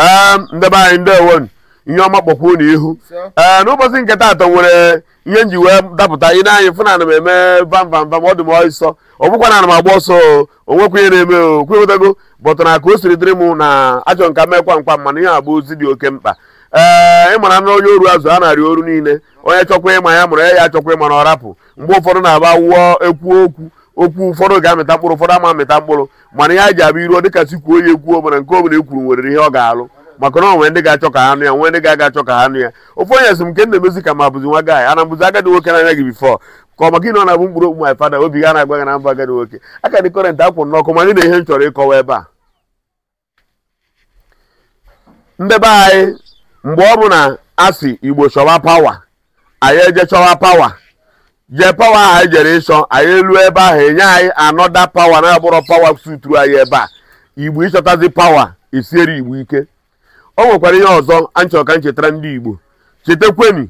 Ehm, ndebe anyị ndewo ihe ọma kpọkwuo n'ihu ee ehm, n'ụbọchị nke atọ nwere ihe nji wee dapụta ị na-anyị fụ na ana m eme bamvamvam ọ dị m ọsọ ọ bụkwa na ana m agba ọsọ onwekwa ihe na-eme okwewetago bọtụ na ka o siri dịrị m na achọ nka mekwa mkpa mana ihe agba ozi dị oke mkpa ee ehm, ịmara na onye oru azụ a na-arị oru niile onye chọkwa ịma ya mụrụ ya ya achọkwa ịma na ọ rapụ mgbe ụfọdụ na-agba wụọ ekwu okwu okwu ụfọdụ ga-amịta mkpụrụ ụfọdụ ama amịta mkpụrụ mana ihe a ji ọ iruo ka si kwuo ya ekwuo mana nke obere ekwuru nwere ihe ọ ga-alụ maka na onwe ndị ga-achọ ka ha nụ ya nwe ndị ga-aga achọ ka ha nụ ya ofu onye sị m nke nna ka ma bụzi nwa gaanyị ana bụzi agadi nwoke anya gị bifọ ka ọ maka nọ na-abụ mkpụrụ okwu my fada obi ga na-agba na mba agadi nwoke aka dị kọrent akwụrụ n'ọkụ mana na ihe m chọrọ ịkọwa ebe a ndị be anyị mgbe ọ bụ na asị igbo chọwa pawa anyị eje chọwa pawa je pawa ahụ e anyị jere ịchọ anyị elu ebe ahụ enye anyị anọda pawa na-abụrọ pawa suturu anyị ebe a igbo ịchọtazi pawa esiere igbo ike o nwekwara ihe ọzọ anyị chọrọ ka chetara ndị igbo chetakweni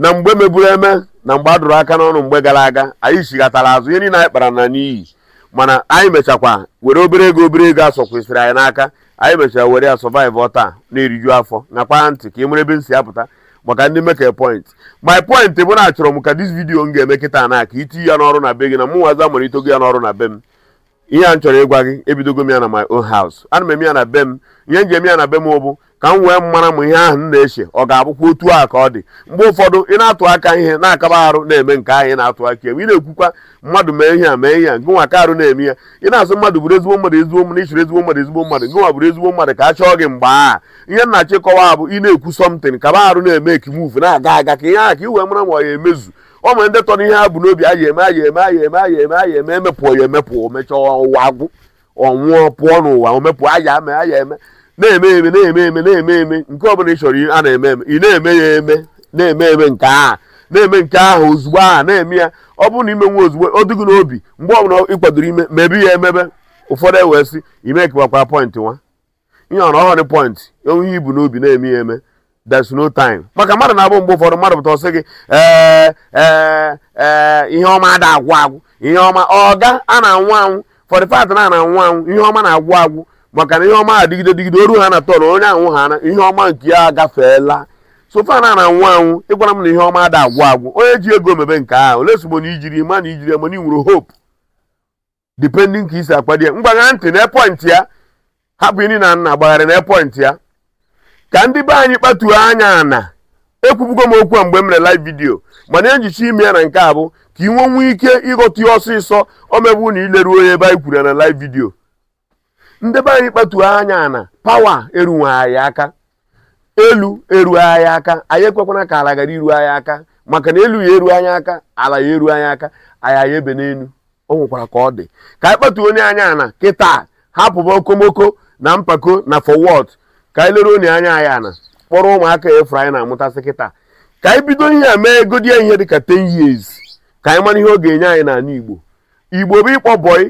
na mgbe meburu eme na mgbe a dụrụ aka n'ọnụ mgbe gara aga anyị chighatara azụ ihe niile anyị kpara na n'iyi mana anyị mechakwa were obere ego obere ego asọ kwesịrị anyị n'aka anyị mechara were ya sọvaiv taa na-eriju afọ nakwa ntị ka ị e mere ebe m si apụta maka ndị mekere point my point bụ na achọrọ m ka dis vidiyo m ga-eme na aka itinye ya n'ọrụ na be gị na mụnwaza mara itogo ya n'ọrụ na be m ihe a m chọrọ ịgwa gị ebidogo m ya na my own house ana m eme ya na be m ihe m ji eme ya na be m ụbụ ka m wee mara m ihe ahụ m na-eche ọ ga-abụkwa otu a ka ọ dị mgbe ụfọdụ ị na-atụ aka ihe na-akaba arụ na-eme nke ahụ ị na-atụ aka ewe ị na-ekwukwa mmadụ mee ihe a mee ihe a nke nwa ka arụ na-eme ya ị na-asụ mmadụ bụrụ ezigbo mmadụ ezigbo mmadụ ichiri ezigbo mmadụ ezigbo mmadụ nke nwa bụrụ ezigbo mmadụ ka a chọọ gị mgbe a ihe nna chịkọwa bụ ị na-ekwu sọmtin kaba arụ na-eme ekimuvu na-aga aga ka ihe ahụ ka ị wee mara ma ọ ya emezu o nwere ndị tọrọ ihe ha bụ n'obi aya eme aya eme aya eme aya eme aya eme emepụọ ya emepụọ mechaa ụwa agwụ ọnwụọ pụọ n'ụwa omepụ aya eme aya eme na-eme eme na-eme eme na-eme eme nke ọbụla ị chọrọ a na-eme eme ị na-eme ya eme na-eme eme nke a na-eme nke ahụ ozugbo a na-eme ya ọ bụrụ na ime nwa ozugbo ọ dịghị n'obi mgbe ọbụla ị kwadoro ime mebe ya emebe ụfọdụ ewee sị ime kewakwa pọịntị nwa ihe ọrụ ọhụrụ pọịntị onye ibu n'obi na-eme ya eme there's no time maka mmadụ na-abụ mgbe ụfọdụ mmadụ pụta ọsị gị e, e, ihe ọma ada agwụ agwụ ihe ọma ọga a na-anwụ anwụ fọdịfat na na-anwụ anwụ ihe ọma na-agwụ agwụ maka na ihe ọma adịgide digide oru ha na tọrọ onye anwụ ha na ihe ọma nke ya agafeela sofa na na-anwụ anwụ ịgwara m na ihe ọma ada agwụ agwụ onye ji ego mebe nke ahụ ole sogbo na ijiri ma na ijiri ma na inwere hope depending ka isi akpadi ya mgbagha ntị na epọntị ya hapụ ini na nna gbagharị na epọntị ya ka ndị be anyị kpatuo anya na ekwubugo m okwu a mgbe m mere live vidio mana ejicha ime ya na nke a bụ ka ị nwee ike ịghọta ya ọsịsọ omebu na ileru onye ebe anyị kwuru ya na live vidio ndị be anyị kpatuo anya na pawa eruwe anyị aka elu eruo aka anyị ekwekwana ka ala gara iru anyị aka maka na elu ya eru anya aka ala ya eru anya aka anyị aya ebe n'elu o nwekwara ka ọ dị ka anyị kpatuo onye anya na kịta hapụba okomoko na mpako na forward ka anyị lere onye anya anyị ana kpọrọ ụmụaka efu anyị na-amụtasị kịta ka anyị bido ihe a mee egodi ihe dịka ten years ka anyị mara ihe ọ ga-enye anyị n'ala igbo igbo bụ ịkpọ bọyị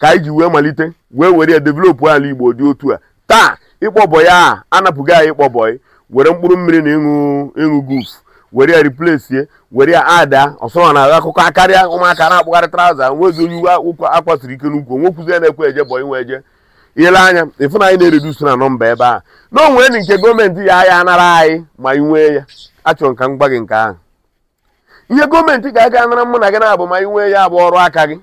ka anyị ji wee malite wee were developụ ala igbo dị otu a taa ịkpọ bọyị a anapụghị anyị ịkpọ bọyị were mkpụrụ mmiri na ịṅụ ịṅụ guf were ya replace were ya ada ọsọrọ na akụkọ akarịa ụmụaka na-akpụgharị traụza nwezi onye uwe ike n'ukwu onwekwuzi ya na-ekwe eje bọyị nwe eje ile anya ịfụ na anyị na-eredusu na nọmba ebe a na o nwere nke gọọmenti ya ahịa anara anyị ma ị nwee ya achọrọ nka m gị nke ahụ ihe gọọmenti ga-aga anara mụ na gị na-abụ ma ị nwee ya bụ ọrụ aka gị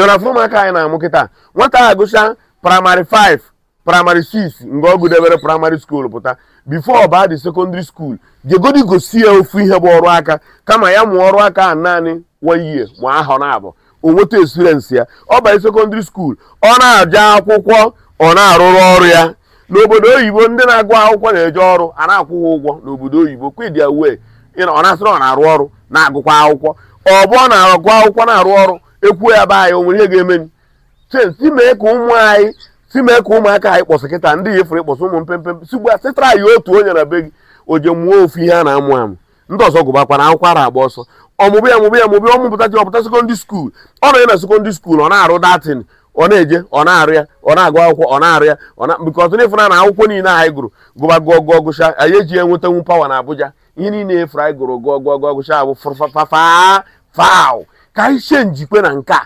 ịra fụrụ maka anyị na-amụ kịta nwata a gụcha praịmarị 5 praịmarị 6 mgbe ọ debere praịmarị skuul pụta bifo ọ baa dị sekọndịrị skuul jegodi gosi ya ofu ihe bụ ọrụ aka kama ya mụọ ọrụ aka naanị one year ma ahọ na-abụ O nweta experience ya ọ banye sekọndịrị skuul ọ na-aja akwụkwọ ọ na-arụrụ ọrụ ya n'obodo oyibo ndị na-agụ akwụkwọ na-eje ọrụ a na-akwụghị ụgwọ n'obodo oyibo kwidia wee ọ na-asịrị ọ na-arụ ọrụ na-agụkwa akwụkwọ ọ bụ ọ na-agụ akwụkwọ na-arụ ọrụ ekwuo ya be anyị o nwere ihe ga-emeni si mee ka ụmụ anyị si mee ka ụmụaka anyị kpọsị kịta ndị efere ịkpọsị ụmụ mpempe sigba otu onye na be gị o je mụọ ofu ihe a na-amụ amụ ndị ọzọ gụbakwana akwụkwọ ara agba ọsọ ọmụbụ ya mụbụ ya mụbụ ya ọmụpụtachi ọpụta sekondị skuul ọ nọ ya na sekondị skuul ọ na-arụ datin ọ na-eje ọ na-arụ ya ọ na-agụ akwụkwọ ọ na-arụ ya bikọ ọtụ na-efuna na akwụkwọ niile anyị gụrụ gụba gụọ gụọ gụcha anyị eji ya nwetanwu pawa na abụja ihe niile efu anyị gụrụ gụọ gụọ gụọ gụcha abụ ffafaw ka anyị chee njikwe na nke a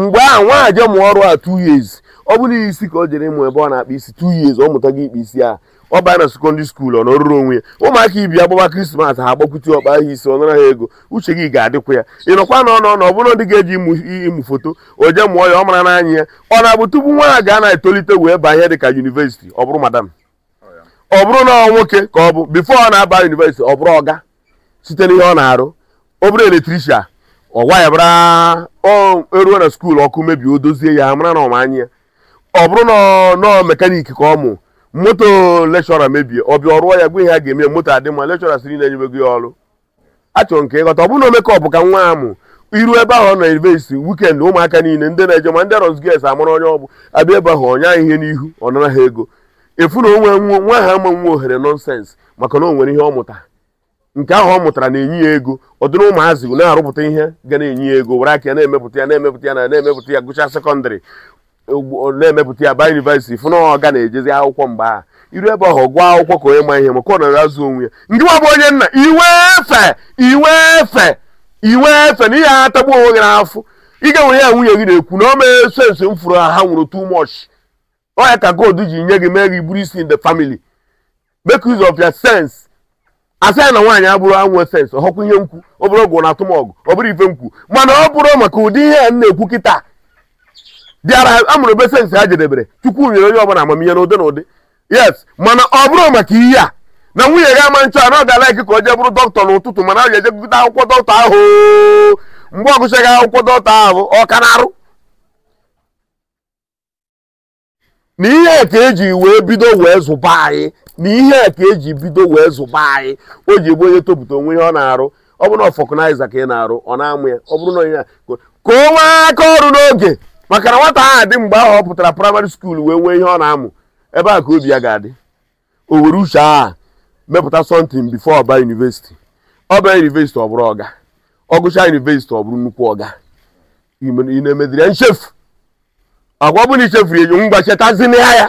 mgbe a nwa je ọrụ a two years ọ bụrụ isi ka o jere ịmụ ebe ọ na-akpa isi tu years ọ mụtago ikpe isi a ọ baa na sekondị skuulu ọ nọrụrụ onwe ya ụmụaka ibi agbaba krismas ha agbakwute ọkpa ahụ isi ọ ha ego uche gị ga-adịkwa ya ịnọkwa na ọnọ ọ bụrụ ndị ga-eji ịmụ foto o mụọ ya ọ mara n'anya ya ọ na-abụ tupu nwa ha ga na-etolite wee baa ihe dị ka yunivesiti ọ bụrụ madam ọ bụrụ na ọ nwoke ka ọ bụ bifo ọ na-aba yunivesiti ọ bụrụ ọga site n'ihe ọ na-arụ obere eletrishia ọ gwa ya bara eruo na skuulu ọkụ mebie o dozie ya ha mara na ọmanya ya ọ bụrụ na nọọ mekaniki ka ọ mụ moto lekshọra mebie ọ bịa ọrụọ ya gwa ihe a ga-eme moto adị mma lekshọra siri na-enyebego ya ọrụ achọrọ nke ịghọta ọ bụrụ na omekọpụ ka nwa amụ iru ebe ahụ na nọ ivesi wikend ụmụaka niile ndị na-eje ma ndị rozges amara onye ọbụ abịa ebe ahụ ọnya ihe n'ihu ọ nara ha ego efu na onwe nwa ha ama nwa ohere nọnsens maka na o nwere ihe ọ mụta nke ahụ ọ mụtara na-enye ya ego ọ dịrị ụmụazị na-arụpụta ihe ga na-enye ya ego were aka ya na-emepụta ya na-emepụta ya na na-emepụta ya gụcha sekọndịrị na-emepụta ya ba yunivesiti fụ na ọ na-ejezi akwụkwọ mgbe ahụ iru ebe ọhụ gwa akwụkwọ ka onye ma ihe maka ọ nọrọ azụ onwe ya ndị nwa bụ onye nna iwe efe iwe efe iwe efe na ihe ha onwe gị n'afọ ị ga-enwere ya nwunye gị na-ekwu na o mee sensi m fụrụ ha nwụrụ too much ọ ka gold ji nye gị mee gị bụrụ isi in the family make use of your sense asị na nwaanyị abụrụ anwe sens ọhọkwa ihe nkwu ọ bụrụ ọgụ na atụmọgụ ọ bụrụ ife nkwu mana ọ bụrụ maka ụdị ihe a m na-ekwu kịta bịara amụrụ besensị ha jedebere chukwu nyere onye ọbụla amamihe na ụdị yes mana ọ bụrụ maka ihe a na nwunye gị ama nchọ na ọ ga ka o je bụrụ dọkịta n'ụtụtụ mana ọ ga-eje gụta akwụkwọ dọkịta ahụ mgbe ọ gụchaghị akwụkwọ dọkịta ahụ ọ ka na-arụ na ihe ka eji wee bido wee zụba anyị na ihe ka eji bido wee zụba anyị o ji egbu onye topụta onwe ihe ọ na-arụ ọ bụrụ na ọfọkụnaiza ka ị na-arụ ọ na-amụ ya ọ bụrụ na onye ka o nwee aka ọrụ n'oge maka na nwata ahụ adị mgbe ahụ ọ pụtara praịmarị skuul wee nwee ihe ọ na-amụ ebe a ka obi ya ga-adị o were uche aha mepụta sọntin bifo ọba yunivesiti ọba yunivesiti ọ bụrụ ọga ọgụcha yunivesiti ọ bụrụ nnukwu ọga ị na-emediri ya nchefu agwa ọbụla ichefuru enyo ngwa chetazina ya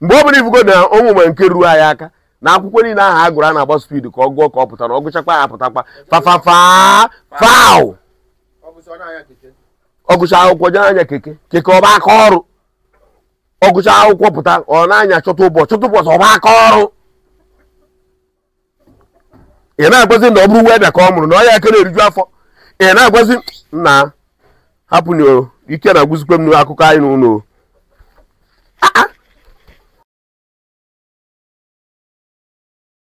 mgbe ọ bụla ifugo na ụmụ nwe nke ruo anyị aka na akwụkwọ niile ahụ a gụrụ a na-agba spid ka ọ gụọ ka ọ pụtara ọgụchakwa gụchakwa ya apụtakwa fafafaa faụ ọgụcha akwụkwọ jee anya keke keke ọba aka ọrụ ọgụcha akwụkwọ pụta ọ na-anya chọta ụbọchị chọta ụbọchị ọba aka ọrụ ị na-agwazi na ọ bụrụ weda ka ọ mụrụ na ọ ya na eriju afọ ị na-agwazi na hapụ na ike na-agwụzikwe m n'akụkọ anyị n'ụlọ